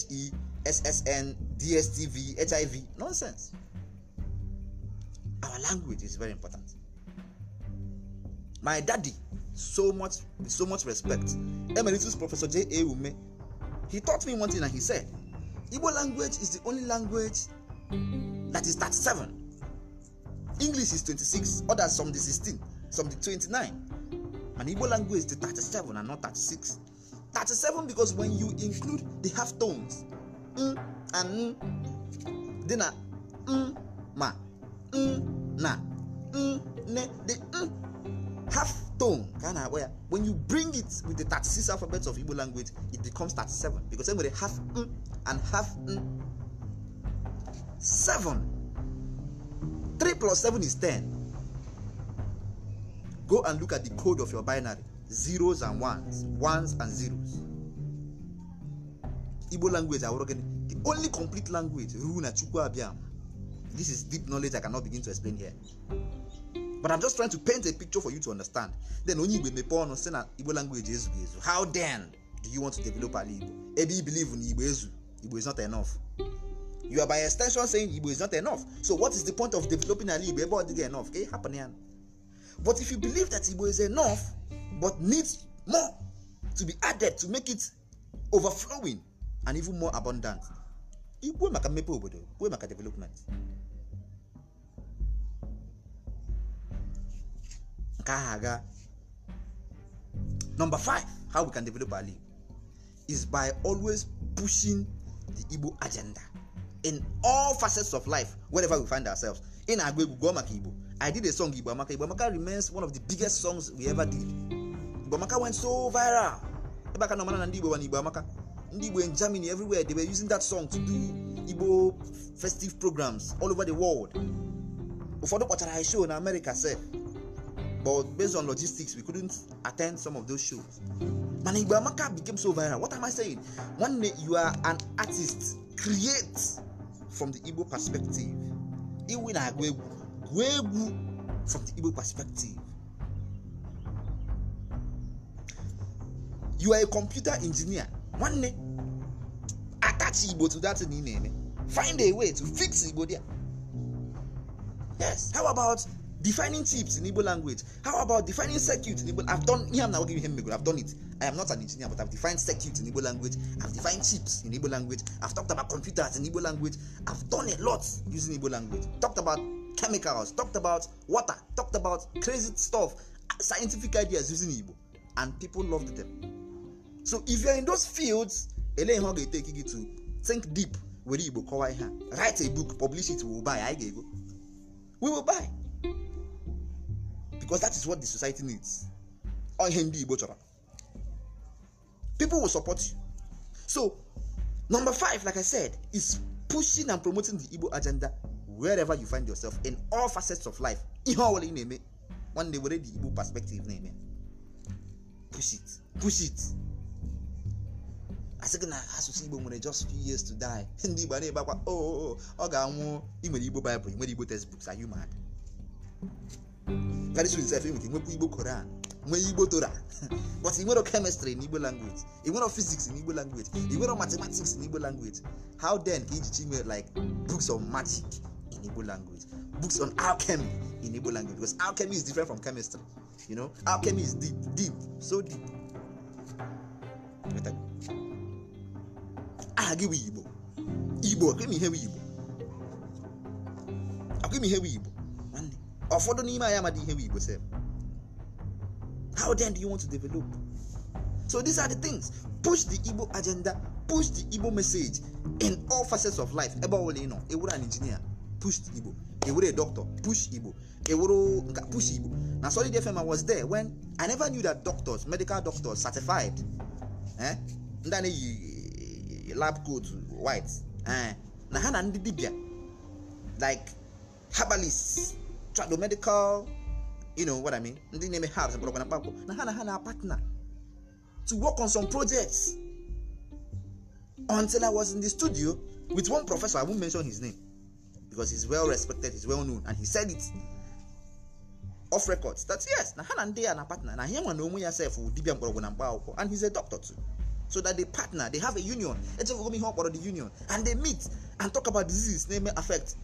ssn dstv hiv nonsense Our language is very important. My daddy, so much, so much respect. Emeritus Professor J. A. he taught me one thing and he said, Igbo language is the only language that is 37. English is 26, others some the 16, some the 29. And Igbo language is the 37 and not 36. 37 because when you include the half tones, mm and mm, then a uh, mm, ma,
n
na nne the n half tone ka a na-akpọ ya when you bring it with the 36 alphabet of Igbo language it becomes 37 because e nwere half n and half n 7 3 plus 7 is 10 go and look at the code of your binary zeros and ones ones and zeros igbo language awụrụ gịnị the only complete language ruo na chukwu abịa this is deep knowledge I cannot begin to explain here. But I'm just trying to paint a picture for you to understand. Then only Igbo mepe ọnụ sị na Igbo language ezu ezu. How then do you want to develop ala Igbo? Ebe you believe na Igbo ezu, Igbo is not enough. You are by extension saying Igbo is not enough. So what is the point of developing ala Igbo ebe ọ dịghị enough? Ka happen ya. But if you believe that Igbo is enough but needs more to be added to make it overflowing and even more abundant, Igbo maka mmepe obodo, Igbo maka development. nke aga number five how we can develop our league is by always pushing the igbo agenda in all facets of life wherever we find ourselves in na-agụ egwu gụọ maka igbo i did a song igbo amaka igbo amaka remains one of the biggest songs we ever did igbo amaka went so viral ebe aka na na ndị igbo wa na igbo amaka ndị igbo in germany everywhere they were using that song to do igbo festive programs all over the world ụfọdụ kpọchara anyị show na america sef but based on logistics we couldn't attend some of those shows man Amaka became so viral what am I saying one day you are an artist create from the Igbo perspective iwe na agwa egwu egwu from the Igbo perspective you are a computer engineer nwanne attach Igbo to that thing na-eme find a way to fix Igbo there yes how about defining chips in Igbo language. How about defining circuit in Igbo? I've done yeah, I'm not giving him I've done it. I am not an engineer, but I've defined circuit in Igbo language. I've defined chips in Igbo language. I've talked about computers in Igbo language. I've done a lot using Igbo language. Talked about chemicals, talked about water, talked about crazy stuff, scientific ideas using Igbo. And people loved them. So if you're in those fields, ele ihe take ga gị to think deep were Igbo kọwaa ihe Write a book, publish it, we will buy. I ga We will buy. because that is what the society needs ọ ndị Igbo chọrọ people will support you so number five like I said is pushing and promoting the Igbo agenda wherever you find yourself in all facets of life ihe ọbụla ị na-eme nwanne were the Igbo perspective na-eme push it push it I gị na asụsụ Igbo nwere just few years to die [laughs] ndị Igbo na-ebe akwa oh, oh, oh, ọ ga-anwụ ị nwere Igbo Bible ị nwere Igbo textbooks are you mad karịsịa izef enwere nwekwa igbo koran nwee igbo tora [laughs] but i nwere kemịstrị na igbo language i nwere fiziks na igbo language i nwere matematiks na igbo language how then ka ijichi nwee like books on magic in igbo language books on alchemy in igbo language because alchemy is different from chemistry you know alchemy is deep deep so deep aha gị igbo igbo akwimi ihe igbo igbo ụfọdụ n'ime anyị amadị ihe bụ igbo sef how then do you want to develop so these are the things push the igbo agenda push the igbo message in all facets of life ebe ọbụla ị nọ ewuru an injinia push the igbo ewuru a doctor push igbo ewuru nka push igbo na solid fm i was there when i never knew that doctors medical doctors certified eh ndị na-eyi eh, lab coat white eh na ha na ndị dibịa like herbalists trado medical you know what i mean ndị na-eme herbs mkpọrọgwụ mm-hmm. na mkpakpọ na ha na ha na partner to work on some projects until i was in the studio with one professor i won't mention his name because he's well respected he's well known and he said it off record that yes na ha na ndị ya na partner na ahịa nwa na onwe ya sef dibia mkpọrọgwụ na mkpa akwụkwọ and he's a doctor too so that they partner they have a union echefugo m ihe ọ kpọrọ the union and they meet and talk about diseases na-eme affect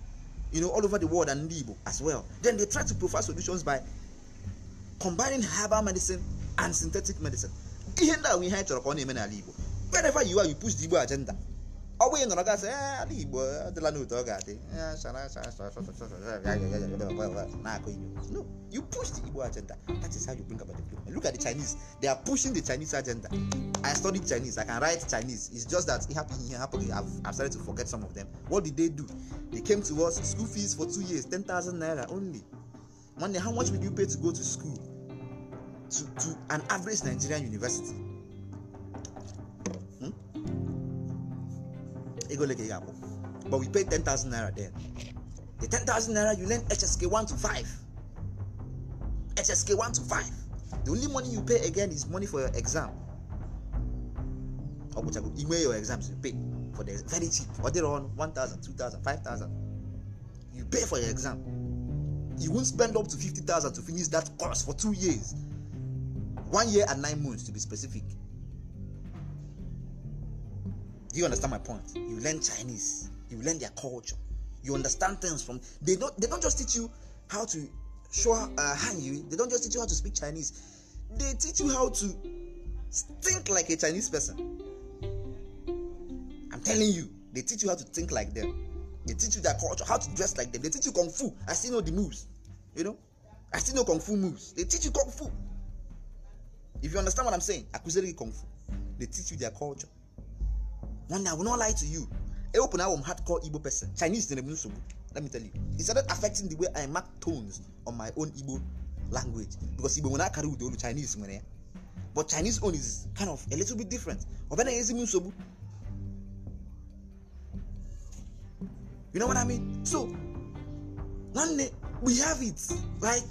you know, all over the world and Igbo as well. Then they try to provide solutions by combining herbal medicine and synthetic medicine. Ihe ndị a ihe anyị chọrọ ka ọ na-eme n'ala Igbo. Wherever you are, you push the Igbo agenda. ọ bụ ị nọrọ gasị ala igbo adịla n'otu ọ ga-adị na-akọ igbo no you push the igbo agenda that is how you bring about the development look at the chinese they are pushing the chinese agenda i studied chinese i can write chinese it's just that it happened here happened I've, I've started to forget some of them what did they do they came to us school fees for two years ten thousand naira only money how much will you pay to go to school to, to an average nigerian university ego ole ka ị but we pay 10,000 naira then the 10,000 naira you lend HSK 1 to 5 HSK 1 to 5 the only money you pay again is money for your exam ọgwụchago ime your exams you pay for the very cheap ọ dịrị ọnụ 1,000 2,000 5,000 you pay for your exam you won spend up to 50,000 to finish that course for two years one year and nine months to be specific Do you understand my point? You learn Chinese, you learn their culture, you understand things from. They don't. They don't just teach you how to show uh, you They don't just teach you how to speak Chinese. They teach you how to think like a Chinese person. I'm telling you, they teach you how to think like them. They teach you their culture, how to dress like them. They teach you kung fu. I still know the moves. You know, I still know kung fu moves. They teach you kung fu. If you understand what I'm saying, I could say kung fu. They teach you their culture. One I will not lie to you. I open I'm hardcore Igbo person. Chinese in nsogbu Let me tell you. It started affecting the way I mark tones on my own Igbo language. Because Igbo nwere I carry with Chinese nwere but Chinese own is kind of a little bit different. You know what I mean? So one day we have it like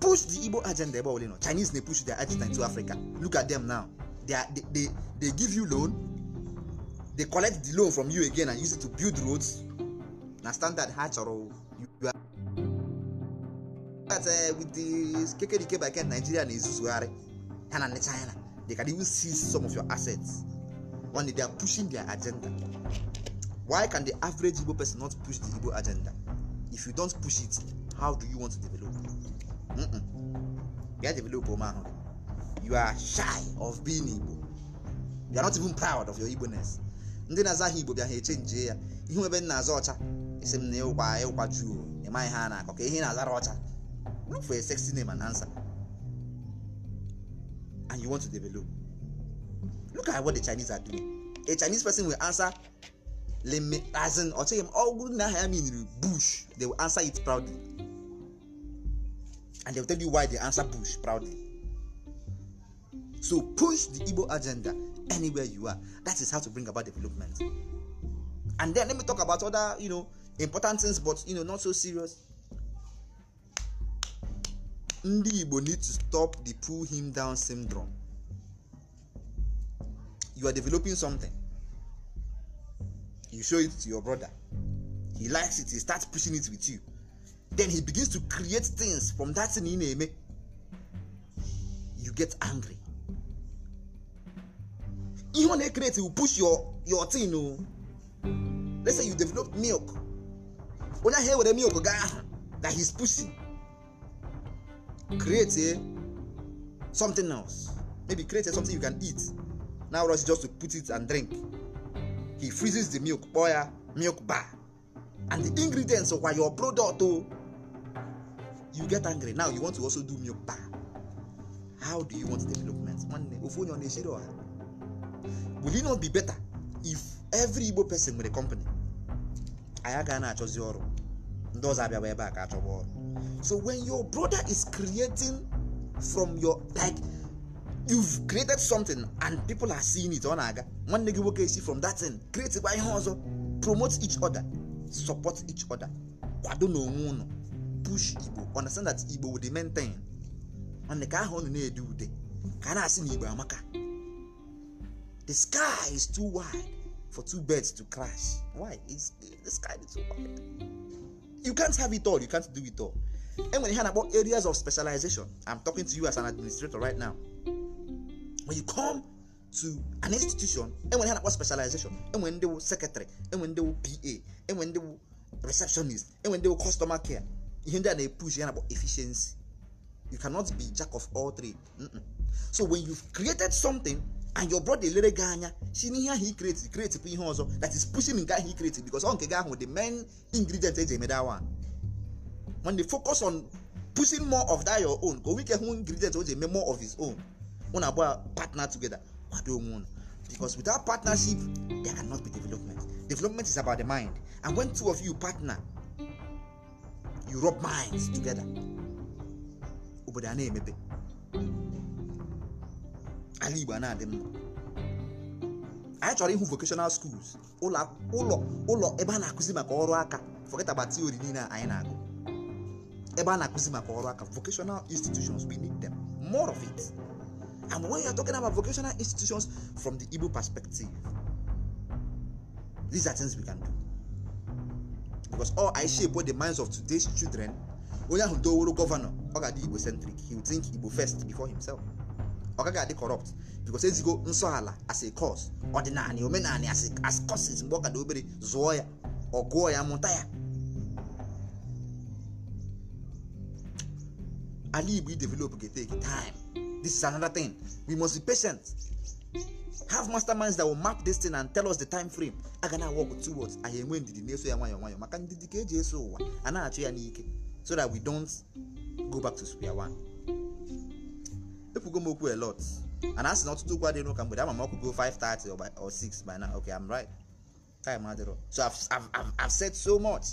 push the Igbo agenda about you na Chinese na push their agenda into Africa. Look at them now. They, are, they, they they give you loan, they collect the loan from you again and use it to build roads na standard ha chọrọ you are eh, with the kekerike by ken nigeria na-ezuzugharị ha na china they can even seize some of your assets only they are pushing their agenda why can the average igbo person not push the igbo agenda if you don't push it how do you want to develop mm get develop o oh, ahụ you are shy of being igbo you are not even proud of your igbo ness ndị na-aza aha igbo bịa ha nje ya ihe ebe nna aza ọcha esi m na ịkwa ịkwa juu ịmaghị ha na-akọ ka ihe na-azara ọcha look for a na name and and you want to develop look at what the chinese are doing a chinese person will answer lemme azin m ọgwụ na aha ya bush they will answer it proudly igbo agenda anywhere you are. That is how to bring about development. And then let me talk about other, you know, important things, but you know, not so serious. Ndi Igbo need to stop the pull him down syndrome. You are developing something. You show it to your brother. He likes it. He starts pushing it with you. Then he begins to create things from that thing in Eme. You get angry ihe ọ na-ekreti will push your your tin o let's say you develop milk onye ahụ ewere milk gaa ahụ that he's pushing create eh, something else maybe create eh, something you can eat now rush just to put it and drink he freezes the milk kpọọ ya ah, milk bar and the ingredients of your product o oh, you get angry now you want to also do milk bar how do you want development nwanne ofu onye ọ na-echere ọha will it not be better if every igbo person nwere company anyị agaghị na-achọzi ọrụ ndị ọzọ abịawa ebe a ka achọwa ọrụ so when your brother is creating from your like you've created something and people are seeing it ọ na-aga nwanne gị nwoke si from that thing create kwa ihe ọzọ promote each other support each other kwado n'onwe unu, push igbo understand that igbo will maintain ọ ka ahụ unu na-ede ude ka a na-asị na igbo amaka The sky is too wide for two birds to crash. Why? It's, the sky is too wide. You can't have it all. You can't do it all. And when you hear about areas of specialization, I'm talking to you as an administrator right now. When you come to an institution, and when you hear about specialization, and when they were secretary, and when they were PA, and when they were receptionist, and when they were customer care, you hear they push you about efficiency. You cannot be jack of all trades. Mm-mm. So when you've created something and your brother elere gị anya si n'ihe ahụ ikreti kreti bụ ihe ọzọ that is pushing nke ahụ ikreti because ọ nke gị ahụ the main ingredient eji eme that one when they focus on pushing more of that your own ka o nwike hụ ingredient o ji eme more of his own una abụọ partner together kwado onwe unu because without partnership there cannot be development development is about the mind and when two of you partner you rub minds together obodo a na-emepe ala igbo na-adị mma anyị chọrọ ịhụ vocational schools ụlọ ụlọ ebe a na-akụzi maka ọrụ aka forget about theory niile anyị na-agụ ebe a na-akụzi maka ọrụ aka vocational institutions we need them more of it and when you are talking about vocational institutions from the Igbo perspective these are things we can do because all I shape what the minds of today's children onye ahụ doworo gọvanọ ọ ga-adị Igbo centric he will think Igbo first before himself ọ gaghị adị kọrọpt bikos ezigo nsọ ala as a kọs ọdịnala omenala as causes mgbe ọ ka dị obere zụọ ya ọ gụọ ya mụta ya ala igbo i develop ga take time this is another thing we must be patient have masterminds that will map this thing and tell us the time frame a ga na-awọgụ towards anyị enwe ndidi na-eso ya nwayọọ nwayọọ maka ndidi ka eji eso ụwa a na-achụ ya n'ike so that we don't go back to square one. ekwugo m okwu a lot and asị na ọtụtụ okwu adịghị n'ụka mgbede ama m ọkwugo 5:30 or 6 by now okay I'm right time adịrọ so I've, I've, I've, said so much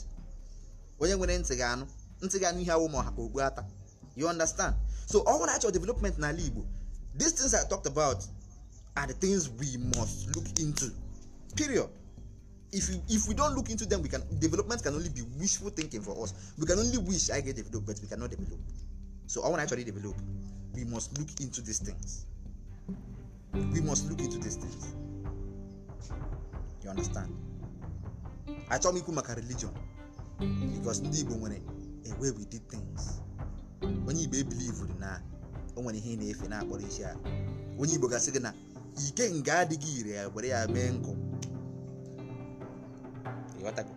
onye nwere ntị ga-anụ ntị ga-anụ ihe awụ ma ogbu ata you understand so all nwere achọ development n'ala Igbo these things I talked about are the things we must look into period if we, if we don't look into them we can development can only be wishful thinking for us we can only wish I get development but we cannot develop so all want to actually develop we must look into these things. We must look into these things. You understand? achọmikwu maka religion because ndị Igbo nwere a way we did things. Onye Igbo ebilivuru na o nwere ihe na-efe na-akpọrọ isi ala. Onye Igbo gasị gị na ike nga adịghị ire ya were ya mee nkụ. Ịghọtago?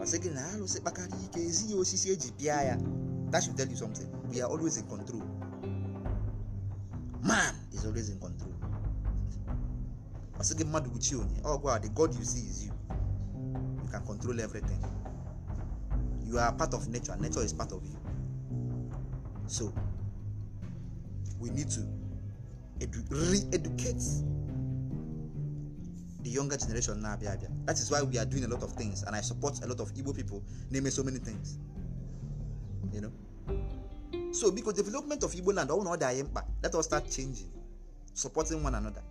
Ọ sị gị na alụsị kpakara ike ezighị osisi eji pịa ya. That should tell you something. We are always in control. man is always in control ọ mmadụ gwuchie onye ọgwụ oh, the god you see is you you can control everything you are part of nature and nature is part of you so we need to edu re-educate the younger generation na-abịa abịa that is why we are doing a lot of things and i support a lot of igbo people na-eme so many things you know so because development of igbo land ọ na ọ dị anyị mkpa let us start changing supporting one another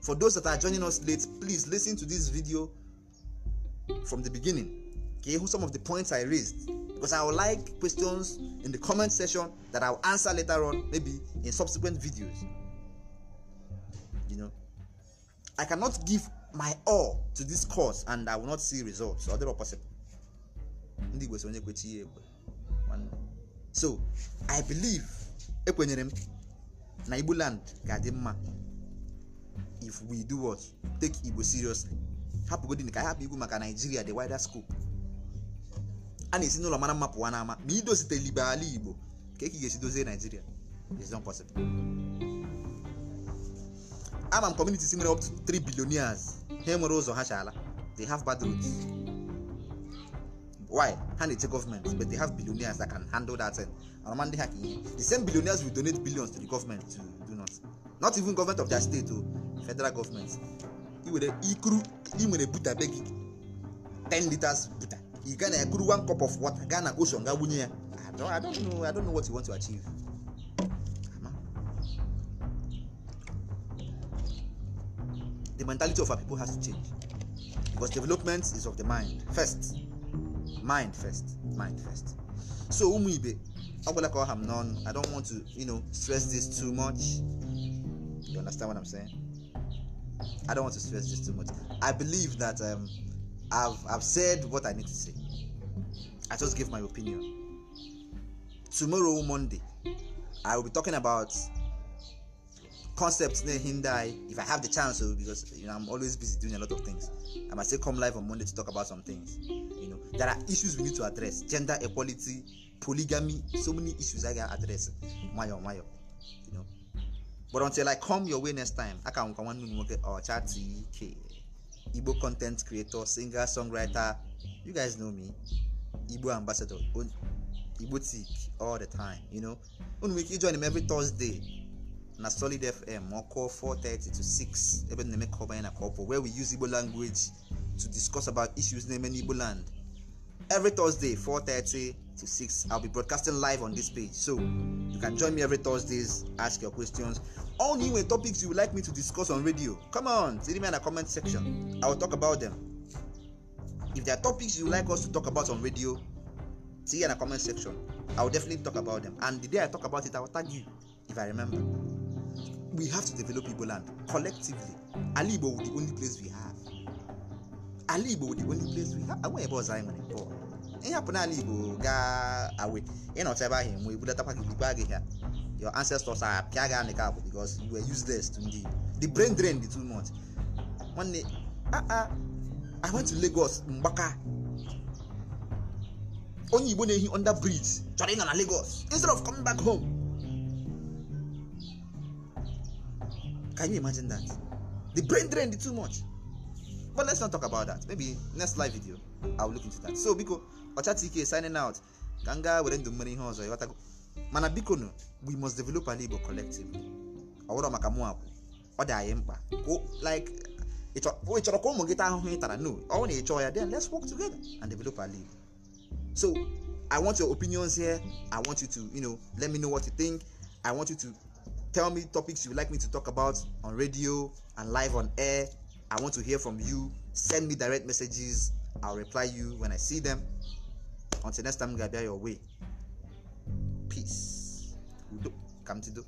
for those that are joining us late please listen to this video from the beginning ka ịhụ some of the points i raised because i would like questions in the comment section that I will answer later on maybe in subsequent videos i cannot give my all to this cause and i will not see results or other possible ndị igbo onye kwechi ekwe so i believe ekwenyere m na igbo land ga-adị mma if we do what take igbo seriously hapụgodin ka hapụ igbo maka nigeria the wider scope a na-esi n'ụlọ mara mma pụwa n'ama ma idozite ibe ala igbo ka eke ga-esi dozie is not possible ama m communities nwere up to 3 billion ha nwere ụzọ ha chala they have bad roads why hand it to government but they have billionaires that can handle that thing anama ndị the same billionaires will donate billions to the government to do not not even government of their state o federal government iwere ikuru ị buta be 10 liters buta e gana ekuru one cup of water gana ocean gaa wunye ya I don't, I don't know I don't know what you want to achieve the mentality of our people has to change because development is of the mind first mind first mind first so ụmụ ibe ọgwụla ka ọ ha m i don't want to you know stress this too much you understand what i'm saying i don't want to stress this too much i believe that um, i've i've said what i need to say i just give my opinion tomorrow monday i will be talking about concepts near hindi if I have the chance so because you know I'm always busy doing a lot of things. I might say come live on Monday to talk about some things.
You know,
there are issues we need to address. Gender equality, polygamy, so many issues I can address. Mayo, mayo. You know. But until I come your way next time, I can come and work or chat TK. Igbo content creator, singer, songwriter. You guys know me. Igbo ambassador. Igbo all the time, you know. Unu join him every Thursday. na solid fm ma ọ kụọ 4:30 to 6 ebe na-eme ka ọ banye na ka where we use igbo language to discuss about issues na-eme n'igbo land every thursday 4:30 to 6 i'll be broadcasting live on this page so you can join me every thursdays ask your questions all new topics you would like me to discuss on radio come on see me in a comment section i will talk about them if there are topics you would like us to talk about on radio see in a comment section i will definitely talk about them and the day i talk about it i will tag you if i remember we have to develop Igbo land collectively. Ali Igbo the only place we have. Ali Igbo the only place we have. Away ebe ọzọ anyị nwere bụ ihe hapụ n'ala Igbo gaa awe ịnọcha ebe ahụ enwe budatakwa gị gbaa gị your ancestors are pịa gị anị ka abụ because you were useless to ndị the brain drain the two months nwanne aa I went to Lagos Mgbaka onye Igbo na-ehi under bridge chọrọ ịnọ na Lagos instead of coming back home Can you imagine that? The brain drained too much. But let's not talk about that. Maybe next live video, I'll look into that. So biko, Ocha TK signing out. Ganga were ndụ mmere ihe ọzọ ịghọtago. Mana biko nụ, we must develop an Igbo collective Ọwụrọ maka mụ akwụ. Ọ dị anyị mkpa. Like ị chọrọ ka ụmụ gị taa ahụhụ ị tara no ọ na ịchọ ya then let's work together and develop a league so i want your opinions here i want you to you know let me know what you think i want you to tell me topics you'd like me to talk about on radio and live on air. I want to hear from you. Send me direct messages. I'll reply you when I see them. Until next time, Gabia your way. Peace. Udo. Kamtido.